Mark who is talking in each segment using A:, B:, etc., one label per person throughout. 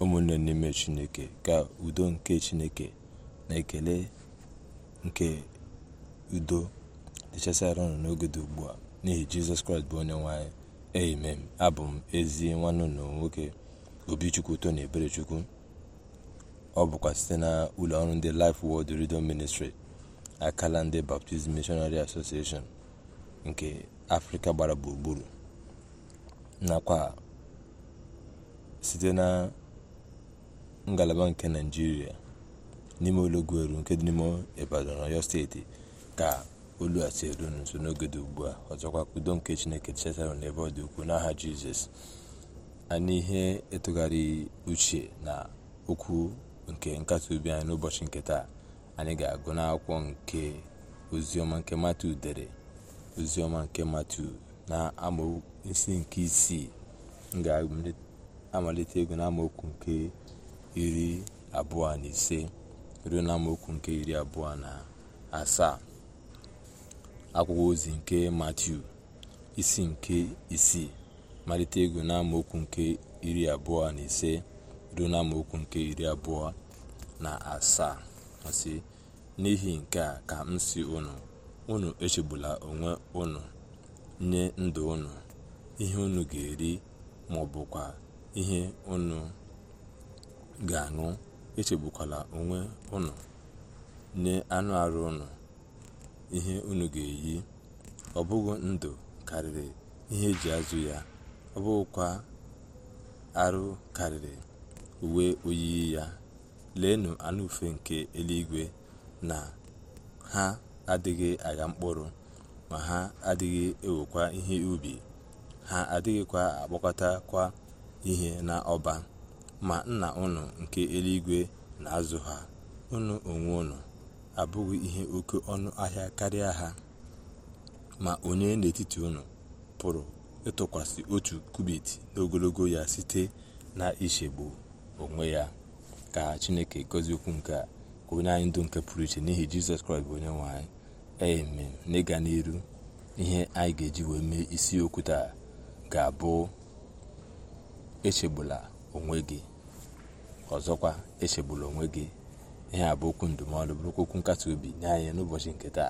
A: ụmụnne n'ime chineke ka udo nke chineke na ekele nke udo dịchasịara unu n'oge dị ugbu a n'ihi jizọs kraịst bụ onye nwanyị amen abụ m ezi nwanne unu nwoke obichukwu tony eberechukwu ọ bụkwa site na ụlọ ọrụ ndị Life wod Radio Ministry akala ndị Baptist Missionary nke afrịka gbara gburugburu nakwa site na ngalaba nke naijiria n'ime eru nke dị n'ime ibadan oyo steeti ka olu a si eru nso n'oge dị ugbu a ọzọkwa ka udo nke chineke chetarọ n'ebe ọ dị ukwuu n'aha jizọs a n'ihe ịtụgharị uche na okwu nke nkasi obi anyị n'ụbọchị nke taa anyị ga-agụ akwụkwọ nke oziọma nke matu dere oziọma nke matu na amaokwu isi nke isii m ga-amalite ego na amaokwu nke iri abụọ na ise ruo n'amaokwu nke iri abụọ na asaa akwụkwọ ozi nke matiu isi nke isii malite ego n'amaokwu nke iri abụọ na ise ruo n'amaokwu nke iri abụọ na asaa ọsị n'ihi nke a ka m si unu unu echegbula onwe unu nye ndụ unu ihe unu ga-eri ma ihe unu ga-aṅụ echegbukwala onwe unu nye anụ arụ ụnụ ihe unu ga-eyi ọ bụghị ndụ karịrị ihe eji azụ ya ọ bụghịkwa arụ karịrị uwe oyiyi ya leenụ anụ ufe nke eluigwe na ha adịghị agha mkpụrụ ma ha adịghị ewekwa ihe ubi ha adịghịkwa kwa ihe n'ọba ma nna unu nke eluigwe na-azụ ha unu onwe unu abụghị ihe oke ọnụ ahịa karịa ha ma onye n'etiti unu pụrụ ịtụkwasị otu kubit n'ogologo ya site na-ichegbu onwe ya ka chineke gọzie okwu nke ka onye anyị ndụ nke pụrụ iche n'ihi jizọs kraịst bụ onye nwanyị anyị n'ịga n'iru ihe anyị ga-eji wee mee isiokwu taa ga-abụ echegbula onwe gị ọzọkwa echegbula onwe gị ihe a bụ okwu ndụmọdụ bụrụkwa okwu nkasi obi nye anyị n'ụbọchị nketa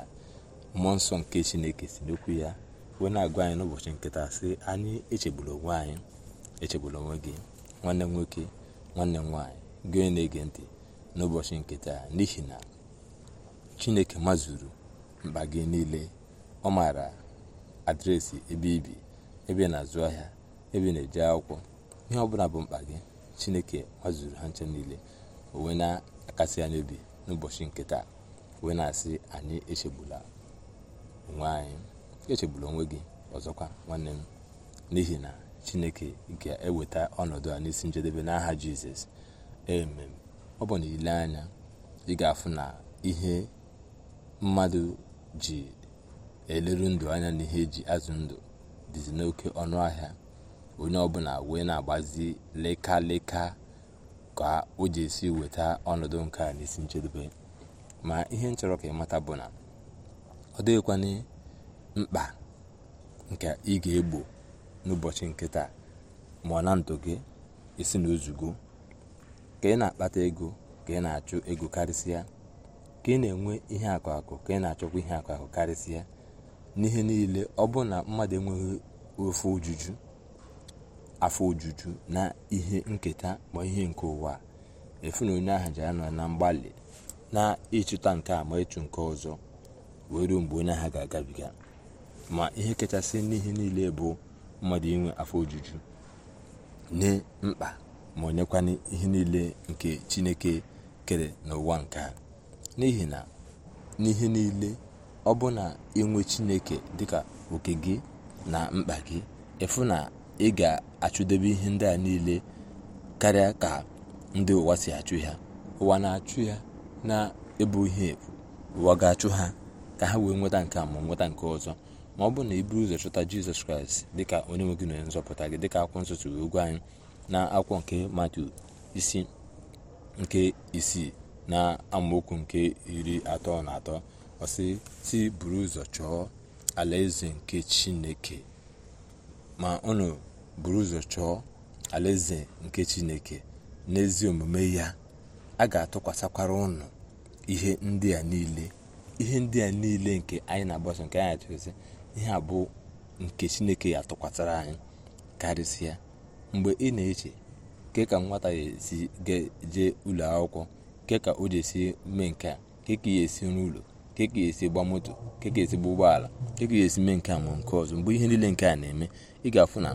A: mmụọ nsọ nke chineke si n'okwu ya wee na-agwa anyị n'ụbọchị nketa sị anyị echegbula onwe anyị echegbula onwe gị nwanne m nwoke nwanne m nwaanyị gị onye na-ege ntị n'ụbọchị nke taa n'ihi na chineke mazuru mkpa gị niile ọ maara adreesị ebe ibi ebe na-azụ ahịa ebe na-eje akwụkwọ ihe ọ bụla bụ mkpa gị chineke zụrụ ha nche niile onwe na-akasị anyị obi n'ụbọchị nke taa wee na-asị anyị echegbula onwe anyị echegbula onwe gị ọzọkwa nwanne m n'ihi na chineke ga-eweta ọnọdụ a n'isi njedebe n'aha jizọs emem ọ bụ na ile anya ị ga-afụ na ihe mmadụ ji eleru ndụ anya na ihe eji azụ ndụ dịzi n'oke ọnụ ahịa onye ọbụla wee na-agbazi leka ka o ji esi weta ọnọdụ nke a n'isi nchedobe ma ihe nchọrọ chọrọ ka ịmata bụ na ọ dịghịkwana mkpa nke ị ga-egbo n'ụbọchị nke taa ma na ndụ gị isi na ka ị na-akpata ego ka ị na-achụ ego karịsịa ka ị na-enwe ihe akụ akụ ka ị na-achọkwa ihe akụ akụ karịsịa n'ihe niile ọ bụrụ na mmadụ enweghị ofe ojuju afọ ojuju na ihe nketa ma ihe nke ụwa efu onye ahụ ji anọ na mgbalị na-ịchụta nke a ma ịchụ nke ọzọ wee ruo mgbe onye ahụ ga-agabiga ma ihe kachasị n'ihe niile bụ mmadụ inwe afọ ojuju nye mkpa ma onyekwana ihe niile nke chineke kere n'ụwa nke a n'ihi na n'ihe niile ọ bụ na inwe chineke dịka oke gị na mkpa gị efu na ị ga-achụdebe ihe ndị a niile karịa ka ndị ụwa si achụ ha ụwa na-achụ ya na-ebu ihe efu ụwa ga-achụ ha ka ha wee nweta nke a ma nweta nke ọzọ ma ọ bụrụ na iburu ụzọ chọta jizọs kraịst dịka onye nwe gị na onye nzọpụta gị dịka akwụkwọ nsọ tụrụ ogwu anyị na akwụkwọ nke matu isi nke isii na amaokwu nke iri atọ na atọ ọsịsị buru ụzọ chọọ alaeze nke chineke ma unu buru ụzọ chọọ alaeze nke chineke n'ezi omume ya a ga-atụkwasịkwara unu ihe ndị a niile ihe ndị a niile nke anyị na-agbaso nke anyị achọzi ihe a bụ nke chineke ya atụkwasịra anyị karịsịa mgbe ị na-eche nke ka nwata ga esi jee ụlọ akwụkwọ nke ka o ji esi mee nke a nke ka ya esi n'ụlọ ka ga-esi gba moto ka e ga-esi gba ụgbọala ka ga-esi mee nke a ma nke ọzọ mgbe ihe niile nke a na-eme ị ga-afụ na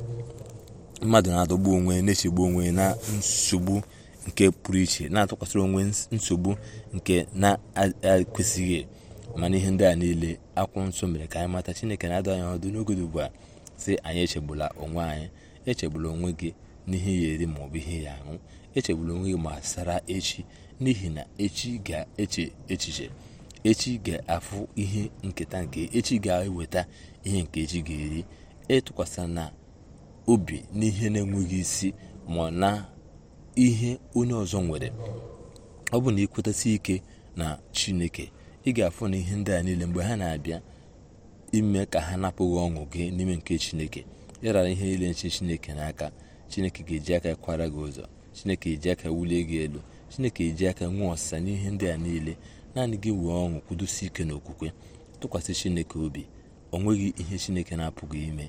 A: mmadụ na-adọgbu onwe na-echegbu onwe na nsogbu nke pụrụ iche na-atụkwasịrị onwe nsogbu nke na-ekwesịghị mana ihe ndị a niile akwụ nsọ mere ka anyị mata chineke na-adụ anyị ọdụ n'oge dị ugbu a sị anyị echegbula onwe anyị echegbula onwe gị n'ihe ya eri maọbụ ihe ya aṅụ echegbula onwe gị ma sara echi n'ihi na echi ga-eche echiche echi ga-afụ ihe nketa nke echi ga-eweta ihe nke echi ga-eri ịtụkwasị e na obi n'ihe na-enweghị isi ma na ihe onye ọzọ nwere ọ bụ na ịkwetasị ike na chineke ị ga-afụ na ihe ndị a niile mgbe ha na-abịa ime ka ha napụghị ọṅụ gị n'ime nke chineke ịrara ihe niile nche chineke n'aka chineke ga-eji aka kwara gị ụzọ chineke eji aka wulie gị elu chineke eji aka nwee ọsịsa n'ihe ndị a niile naanị gị wee ọṅụ kwudosi ike n'okwukwe tụkwasị chineke obi o nweghị ihe chineke na-apụghị ime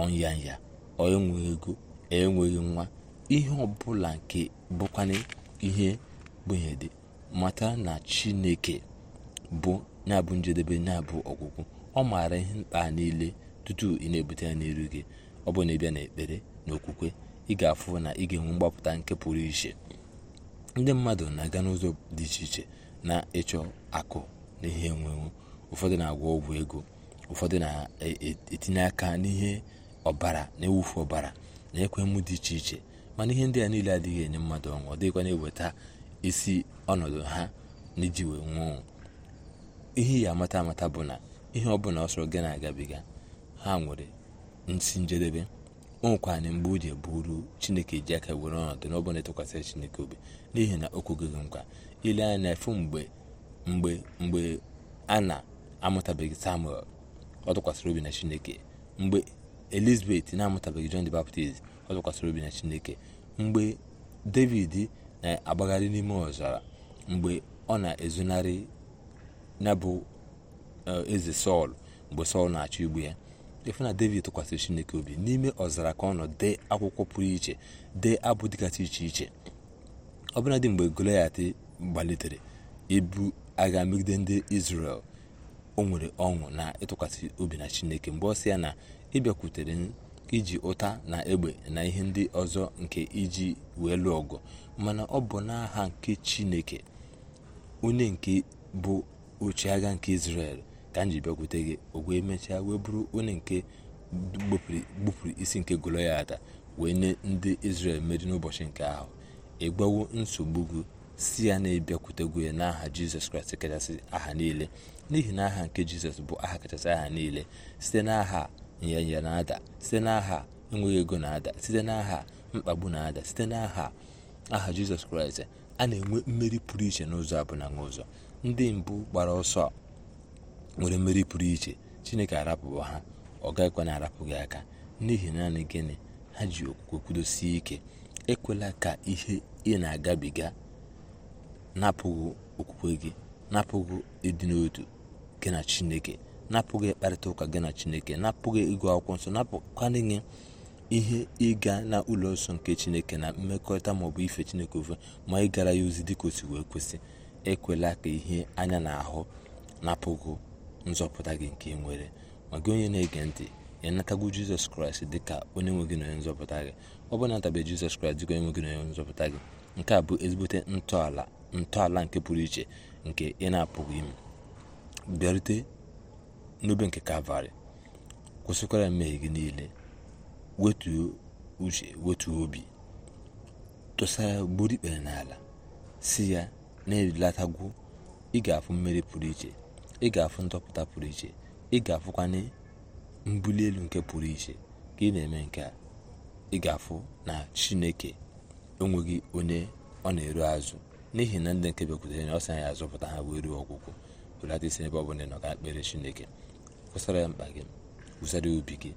A: ọnya ya ọ enweghị ego e enweghị nwa ihe ọbụla nke bụkwana ihe gbenye dị mata na chineke bụ na-abụ njedebe na-abụ ọgwụgwụ ọ maara ihe mkpa niile tutu ị na-ebute ya n'iru gị ọ bụ na ịbịa na ekpere na okwukwe ị ga-afụ na ị ga-enwe mgbapụta nke pụrụ iche ndị mmadụ na-aga n'ụzọ dị iche iche na ịchọ akụ n'ihe enwenwu ụfọdụ na-agwọ ọgwụ ego ụfọdụ na-etinye aka n'ihe ọbara na-ewufu ọbara na ekwemu dị iche iche mana ihe ndị a niile adịghị enye mmadụ ọnwụ ọ dịghịkwa na-eweta isi ọnọdụ ha n'iji wee nwụọ ihe ya amata amata bụ na ihe ọbụla sọrọ gị na-agabiga ha nwere nsi njedebe o na mgbe o ji bụrụ chineke ji aka were ọnọdụ n'ọbụla ịtụkwasịrị chineke obi n'ihi na o kwugoghị nkwa ile na efu mgbe mgbe mgbe a na-amụtabeghị samuel ọ tụkwasịrị obi na chineke mgbe elizabeth na-amụtabeghị john the baptist ọ tụkwasịrị obi na chineke mgbe david na-agbagharị n'ime ọzara mgbe ọ na-ezonarị na bụ eh, eze sọl mgbe sọl na-achọ igbu ya na david tụkwasịrị chineke obi n'ime ọzara ka ọ nọ dee akwụkwọ pụrụ iche dee abụ dịgasị iche iche ọbụladị mgbe goliat gbalitere ibu agha megide ndị israel o nwere ọṅụ na ịtụkwasị obi na chineke mgbe ọ sị ya na ịbịakwutere iji ụta na egbe na ihe ndị ọzọ nke iji wee lụọ ọgụ mana ọ bụ n'aha nke chineke onye nke bụ oche agha nke israel ka m ji bịakwute gị o wee mechaa wee bụrụ onye nke gbupụrụ isi nke ada wee nye ndị israel mmeri n'ụbọchị nke ahụ ịgbawo nsogbu gị si ya na ịbịakwutego ya n'aha jizọs kraịst kachasị aha niile n'ihi na aha nke jizọs bụ aha kachasị aha niile site n'aha nyanya na-ada site n'aha enweghị ego na-ada site n'aha mkpagbu na-ada site n'aha aha jizọs kraịst a na-enwe mmeri pụrụ iche n'ụzọ abụna n'ụzọ ndị mbụ gbara ọsọ nwere mmeri pụrụ iche chineke arapụwa ha ọ gaghịkwa na arapụ gị aka n'ihi naanị gịnị ha ji okwukwe kwudosie ike ekwela ka ihe ị na-agabiga napụghị okwukwe gị napụghị ịdị n'otu gị na chineke napụghị ịkparịta ụka gị na chineke napụghị ịgụ akwụkwọ nsọ napụkwana inye ihe ịga na ụlọ nsọ nke chineke na mmekọrịta maọbụ ife chineke ofe ma ị gara ya ozi dịka o si wee kwesị ekwela ka ihe anya na ahụ napụghị nzọpụta gị nke ị nwere ma gị onye na-ege ntị ya natagwu jizọs kraịst dị ka onye nwe gị na onye nzọpụta gị ọ bụ natabe jizọs kraịst dịka onye nwe gị na onye nzọpụta gị nke a bụ ezigbote ntọala ntọala nke pụrụ iche nke ị na-apụghị ime bịarute n'obe nke kalvarị kwụsịkwara mmehie gị niile wetuo uche wetuo obi tụsara ya gburu ikpere n'ala si ya na-erilatagwu ị ga-afụ mmeri pụrụ iche ị ga-afụ ndọpụta pụrụ iche ị ga-afụkwanye mbuli elu nke pụrụ iche ka ị na-eme nke a ị ga-afụ na chineke onweghị onye ọ na-eru azụ n'ihi na ndị nke bekwutere ya ọ sị ya azụpụta ha wee ruo ọgwụgwụ belata isi ebe ọ bụla nọ ka ekpere chineke kwụsara ya mkpa gị kwụsara ya obi gị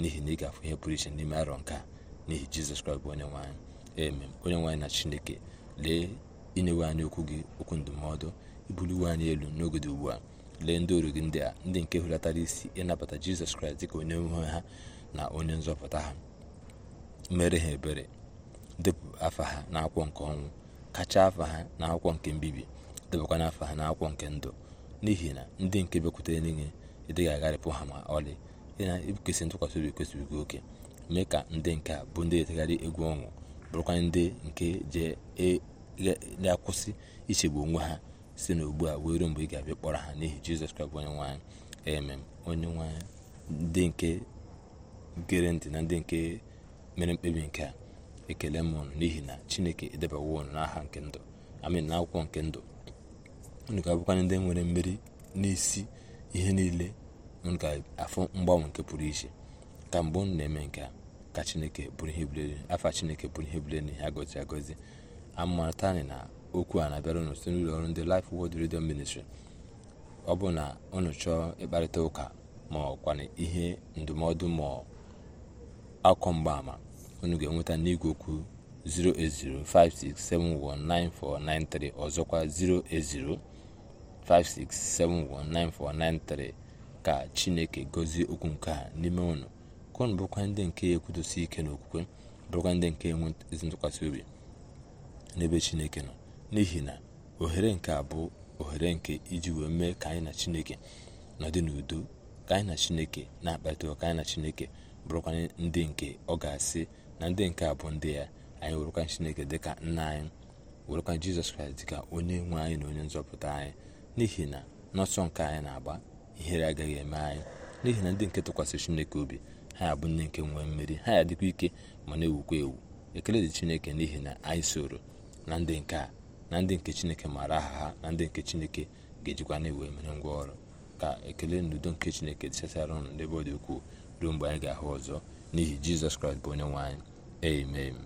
A: n'ihi na ị ga-afụ ihe pụrụ iche n'ime arọ nke a n'ihi jizọs kraịst bụ onye nwaanyị eme onye nwanyị na chineke lee inyewe anyị okwu gị okwu ndụmọdụ ibuliwe anyị elu n'oge dị ugbu a lee ndị oru gị ndị a ndị nke hulatara isi ịnabata jizọs kraịst dịka onye nwe ha na onye nzọpụta ha mere ha ebere depụ afa ha n'akwụkwọ nke ọnwụ kacha afa ha n'akwụkwọ nke mbibi na afa ha n'akwụkwọ nke ndụ n'ihi na ndị nke bekwutere n'ihe ị dịghị agharịpụ ha ma ọlị ịna na-ekwesị ntụkwasị obi kwesịrị gị oke mee ka ndị nke a bụ ndị etegharị egwu ọṅụ bụrụkwa ndị nke je e, akwụsị ichegbu onwe ha si n'ugbu a wee ruo mgbe ị ga-abịa kpọrọ ha n'ihi jizọs kraịst bụ onye nwanyị emem onye nwanyị ndị nke gere ntị na ndị nke mere mkpebi nke a ekele m ụnụ n'ihi na chineke edebawo ụnụ n'aha nke ndụ amin na akwụkwọ nke ndụ unu ga-abụkwanye ndị nwere mmeri n'isi ihe niile unu ga-afụ mgbanwe nke pụrụ iche ka mgbe ụnụ na-eme nke a ka chineke bụrụ ihe bulere afọ chineke bụrụ ihe bulere n'ihe agọzi agọzi amarata anyị na okwu a na-abịara unu site n'ụlọ ọrụ ndị Life Word Radio Ministry ọ bụ na unu chọọ ịkparịta ụka ma ọkwana ihe ndụmọdụ ma akọ mgbaama unu ga-enweta n'igwe okwu 08056719493 ọzọkwa 08056719493 ka Chineke gozie okwu nke a n'ime ụnụ ka unu ndị nke ekwudosi ike n'okwukwe bụrụkwa ndị nke enwe ezi ntụkwasị obi n'ebe Chineke nọ n'ihi na ohere nke a bụ ohere nke iji wee mee ka anyị na chineke nọdị n'udo ka anyị na chineke na-akpata ụka anyị na chineke bụrụkwanye ndị nke ọ ga-asị na ndị nke a bụ ndị ya anyị werekwa chineke dịka nna anyị werụkwanye jizọs kraịst dịka onye nwe anyị na onye nzọpụta anyị n'ihi na n'ọsọ nke anyị na-agba ihere agaghị eme anyị n'ihi na ndị nke tụkwasị chineke obi ha bụ ndị nke nwee mmeri ha ya dịkwa ike ma na-ewukwa ewu ekele dị chineke n'ihi na anyị soro na ndị nke a na ndị nke chineke maara aha ha na ndị nke chineke ga-ejikwa na-ewe mere ngwa ọrụ ka ekele n'udo nke chineke dịchasara ụnụ n'ebe ọ dị ukwuu ruo mgbe anyị ga-ahụ ọzọ n'ihi jizọs kraịst bụ onye nwe anyị amen